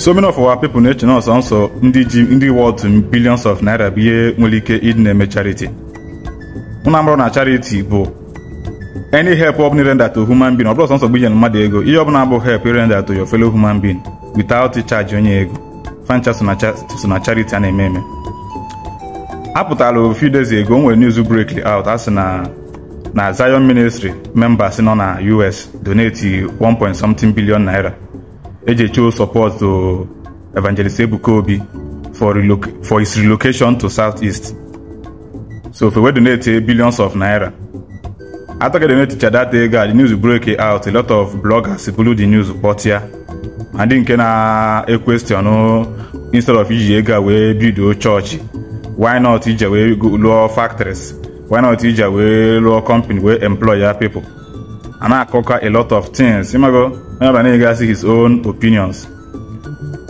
so many of our people na-eche na ọsọ nsọ ndị ji ndị wọd billions of naira bụ ihe nwere ike ịdị na-eme chariti. mụ na chariti na bụ any help ọ bụla render to human being ọ bụla ọsọ nsọ gbinyere mmadụ ego ihe ọ bụla bụ help render to your fellow human being without charge onye ego fancha so na charity a na-eme eme apụtala a few days ago nwere news break out a na na Zion Ministry members nọ na US donate 1 point something billion naira Ejecho support to uh, Evangelist Ebukobi for, reloc- for his relocation to Southeast. So if we donate billions of naira. After they donated that day, the news broke out. A lot of bloggers blew the news report here. And then can a question instead of iji we build bido church. why not ije wee lụọ factories why not ije We lụọ company We employ ya people a na a lot of things ịmago onye ọbụla na-egasị his own opinions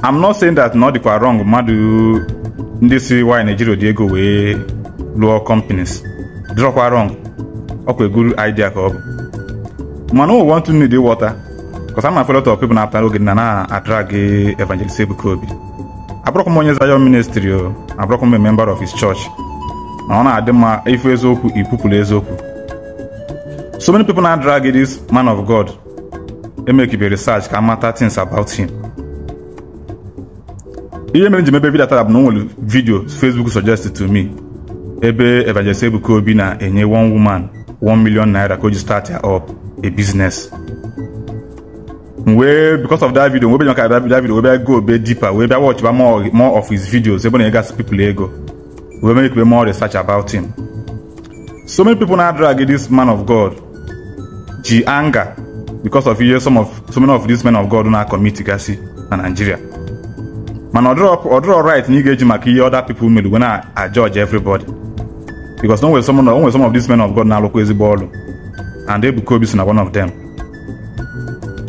I'm not saying that na ọ dịkwa wrong mmadụ ndị si why Nigeria dị ego wee lụọ companies dịrọkwa wrong ọkwa eguru idea ka ọ bụ mana we want to need water because I'm a lot of people na oge na na-adrag Evangelist Ebuka Obi abụrọkwa m onye Zion ministry o oh. abụrọkwa a member of his church ma ọ na-adị mma ifu eziokwu ipupụlụ eziokwu so many people now drag this man of god e make you be research can matter things about him ihe mere njem ebe vidio tab na onwere vidio facebook suggested to me ebe evangelist ebuka obi na-enye one woman one million naira ka o ji start ya up a business wee because of that video wee bịa that video wee bịa go be deeper wee bịa watch ba more more of his videos ebe na egas people ego wee make more research about him so many people na drag this man of god ji anger because of ihe some of so many of these men of God na-akọmiti gasị na Nigeria mana ọdịrọ right na ị ga-eji maka ihe other people mere wee na-ajudge everybody because onwe some some of these men of God na-alụkwa ezigbo ọrụ and Ebuka Obi so na one of them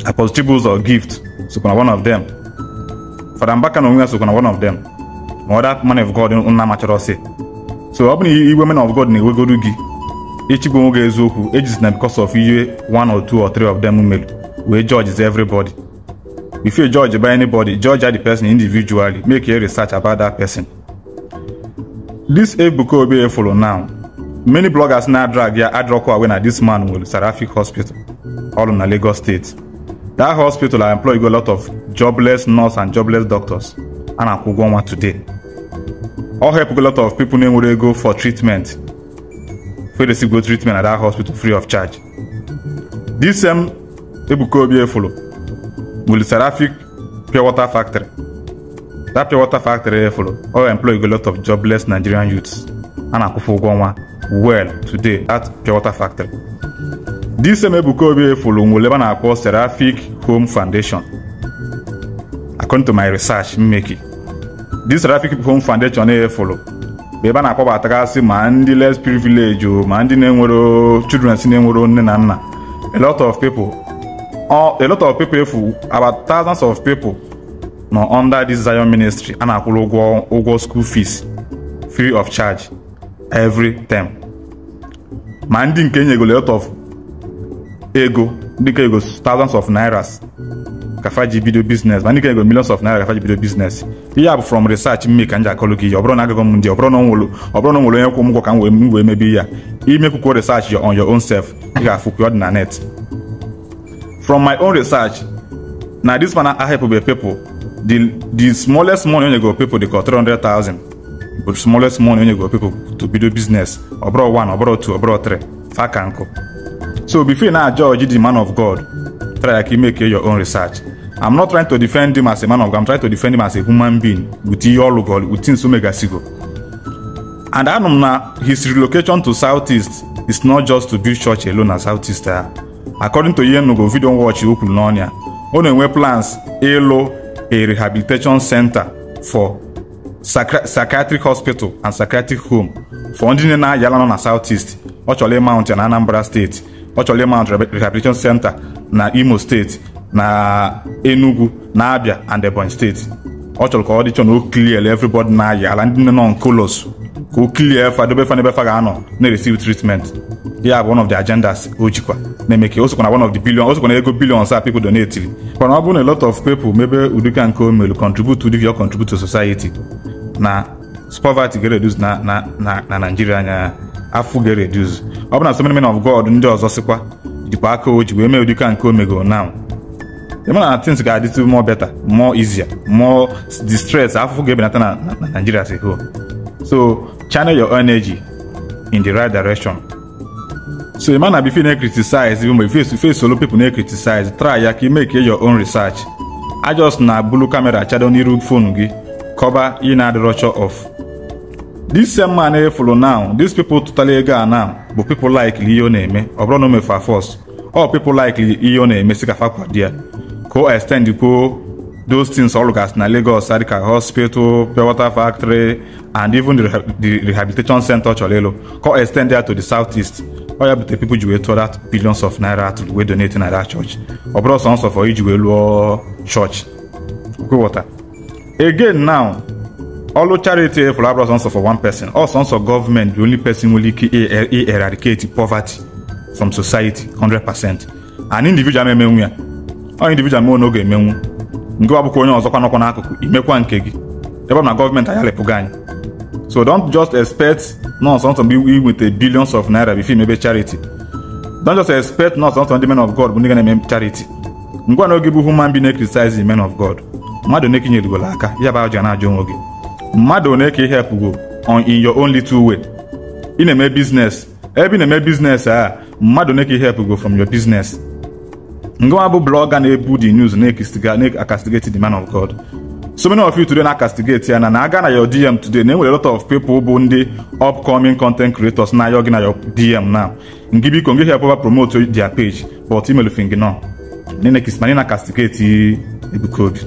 Apostle Chibuzor Gift sokwa na one of them Fada Mbaka na onwe ya sokwa na one of them ma other man of God na amachọrọ si so ọ bụ na iwe men of God na-ewegodu gị Ichigbo nwoke eziokwu ejizina because of ihe one or two or three of them mere wee is everybody. If you judge by anybody, judge the person individually, make a research about that person. This Ebuka Obi follow now. Many bloggers now drag their adroko away na this man will Seraphic Hospital, all in Lagos State. That hospital I employ a lot of jobless nurse and jobless doctors, and I could go on today. All help a lot of people na-enwere ego for treatment wey the still go treatment at dat hospital free of charge This same ebuka obi efolo wuli seraphic pure water factory That pure water factory follow. all employ a lot of jobless nigerian youths a na-akwụfe ụgwọ well today at pure water factory This same ebuka obi efolo nwere ebe a na-akpọ seraphic home foundation according to my research mmeki this seraphic home foundation follow. bụ ebe a na-akpọbatagasị ma ndị less privilege ma ndị na-enwero children si na-enwero nne na nna a lot of people a lot of people efu about thousands of people nọ under this Zion ministry a na-akwụrụ ụgwọ ụgwọ school fees free of charge every term ma ndị nke enyegolo lot of ego dịka ego thousands of nairas Kafaji bido business mana ikene go millions of naira Kafaji bido business ihe a bụ from research m mee ka m ji akọlụ gị ihe ọ bụrụ na agụgọ m ndị ọ bụrụ na ọ nwere onye kwụ m ụgwọ ka m wee mebe ihe ya imekwukwo research on your own self ị ga-afụkwa ọ dị na net from my own research na this man ahepụbe people the the smallest money onye go people dị ka 300,000 bụ smallest money onye go people to bido business ọ bụrụ 1 ọ bụrụ 2 ọ bụrụ 3 fa ka nkụ so before na judge the man of god try ka ime ke your own research I'm not trying to defend him as a man of God. I'm trying to defend him as a human being with Iyolugoli, with Tinsumegasigo. And Anum na his relocation to Southeast is not just to build church alone as Southeast. according to Yenugo video watch o kwuru n'ọnya ọ na-enwe plans ịlụ a rehabilitation center for psychiatric hospital and psychiatric home for ndị nne na-ayala na Southeast ọ Mountain ịmount na Anambra steeti ọ chọrọ rehabilitation center na Imo State. na Enugu na Abia and Ebonyi steeti ọ chọrọ ka ọ dịchọ na o clear everybody na-ayị ala ndị nne nọ nkolos ka o clear efa dobe fa n'ebe fa ga-anọ na-receive treatment ya bụ one of the agendas o jikwa na-eme ka o sokwa na one of the billion o sokwa na ego billion a people donatiri mana ọ bụrụ na a lot of people mebe udika nke o mere contribute udika your contribute to society na poverty ga-reduce na na na Nigeria anya afụ ga-reduce ọ bụ na so many of God ndị ọzọ sikwa jikwa aka o ji wee mee udika nke o megoro now the man things ga a little more better more easier more distress I forget ebelata na Nigeria as a whole so channel your energy in the right direction so the man na before na criticize even if you face solo people na criticize try ya ka make your own research I just na bulu camera chado n'iru phone gị cover ina the rupture of this same man efulu now these people totally ga now bụ people like ihe ọ na-eme ọ bụrụ na o first all people like ihe ọ na-eme si ka fa co extend co those things all as na lagos sadika hospital pure water factory and even the, the rehabilitation center cholelo co extend there to the southeast oya bute people ji wee tụọ that billions of naira to wee donate na that church ọ bụrụ sọnsọ for iji wee lụọ church kwewọta again now ọlụ charity efuru abụrụ sọnsọ for one person ọ sọnsọ government. the only person nwere ike e-, eradicate poverty from society 100 percent and individual memenwu ya onye individual meo na oge emenwu ngịwa bụkwa onye ọzọkwa nọkwa n'akụkụ imekwa nke gị ebe ọ na gọọmenti agharịpụgo anyị so don't just expect nọọsọ nsọ mgbe inweta billions of naira bifo imebe chariti. don't just expect nọọsọ nsọ ndị men of God bụ ndị ga na-eme chariti. ngwa na oge bụ human bi na-criticize men of God mmadụ one ka inyerigolo aka ya ba ji na-ajụ onwe gị mmadụ one ka ihepụgo on in your own little way ị na-eme business ebe ị na-eme business a mmadụ one ka ihepụgo from your business ngwa bụ blọga na-ebu the news na akastigeti the man of God so many of you today na-acastigate ya na na aga na your DM today na enwere a lot of people bụ ndị upcoming content creators na ayọghị na your DM now ngị biko ngị help promote their page but email fing no na-ekismanye na castigate Ebuka Obi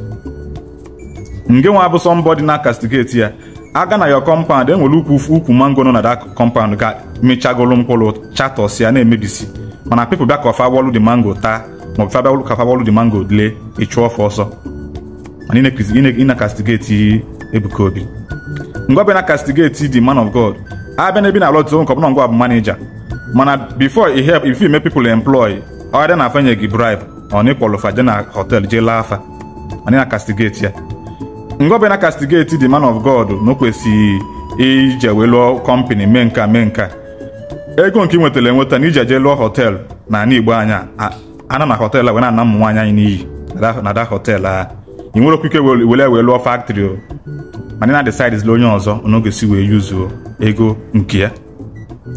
nge nwa bụ somebody na castigate ya aga na your compound enwere ukwu ukwu mango nọ na that compound ga mechagolu mkpụrụ chatọs ya na-emebisi mana people bịa ka ofa wọlụ the mango taa maọbụ fabia ụlụ ka fabia ụlụ mango dịle ịchụ ọfọ ọsọ na Ebuka Obi ngwa bịa na kastigeti di man of God na ebe na alọta nke na ngwa bụ manija mana before i if you make people employ ọ dị na afanye gị bribe ọ na ịkpọlụfa je na je laa na kastigeti ya ngwa bịa e e na kastigeti man God na o kwesịghị ije wee lụọ kọmpani mee nka mee nka ego nke ị nwetara enweta na ije je lụọ na ana Igbo anya ana na họteelụ wee na-ana ụmụ nwaanyị anyị n'iyi na da họteelụ a ị nwere okwu ike were wee lụọ faktrị o mana na decidezila onye ọzọ n'oge si wee yuzuo ego nke ya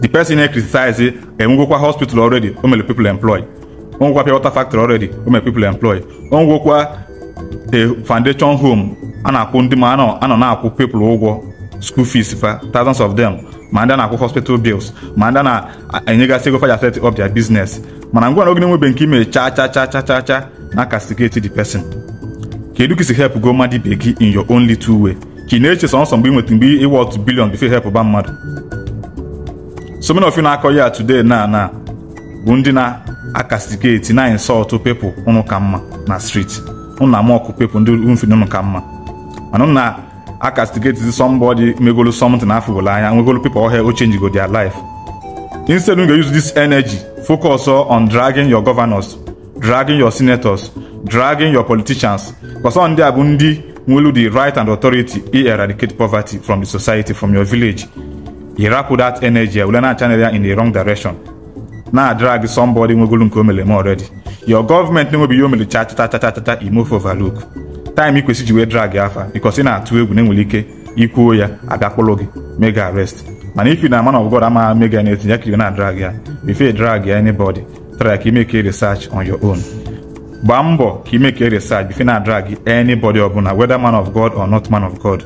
the person na-ekritisize enwegokwa hospital already o mere people employ onwekwa pịa water factory already o mere people employ onwekwa a e, foundation home a na-akwụ ndị ma anọ na-akwụ people ụgwọ school fees fa thousands of them ma ndị na-akwụ hospital bills ma ndị na-enyegasị ego faja set up their business mana ngwa na oge na-enwebe nke ime cha cha cha cha cha na castigate the pesin. kedu ka isi help go mmadụ ibe gị in your only two way ka ị na-eche sọnsọ mgbe ị nweta mgbe ịwa ọtụ billion before help ba mmadụ so many na-akọ ya today na na bụ ndị na akastigeti na insult people ụnụ ka mma na street ụnụ na-ama ọkụ ndị ndị ụnụ ka mma mana ụnụ na a castigate somebody megolo something afụgolo anya nwegolo people oh, here o change go their life instead we go use this energy focus oh, on dragging your governors dragging your senators dragging your politicians because ndị a bụ ndị the right and authority i eradicate poverty from the society from your village You ịrapụ that energy were na channel ya in the wrong direction Now, drag somebody nwegolo nke o mere eme already your government na-enwebi ihe o mere cha cha cha cha cha move imove look. taịm ikwesị ji wee drag afa bikos ị na-atụ egwu na enwere ike ikwuo ya agakpụrụ gị mega arrest mana if na man of God amaghị mega na-etinye aka iwe na drag ya before drag ya anybody try ka imeke research on your own gbaa mbọ ka imeke research before na drag anybody ọbụla whether man of God or not man of God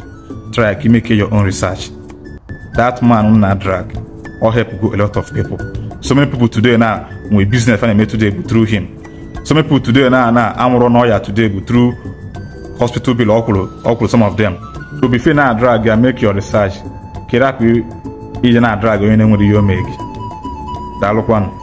try ka imeke your own research that man na drag or help go a lot of people so many people today na nwee business a na-eme today bụ through him so many people today na na amụrụ n'ọya today bụ through hospital bill okulu okulu some of them so before na drag ya make your research kira pi ije na drag onye na-enwere ihe That mee gị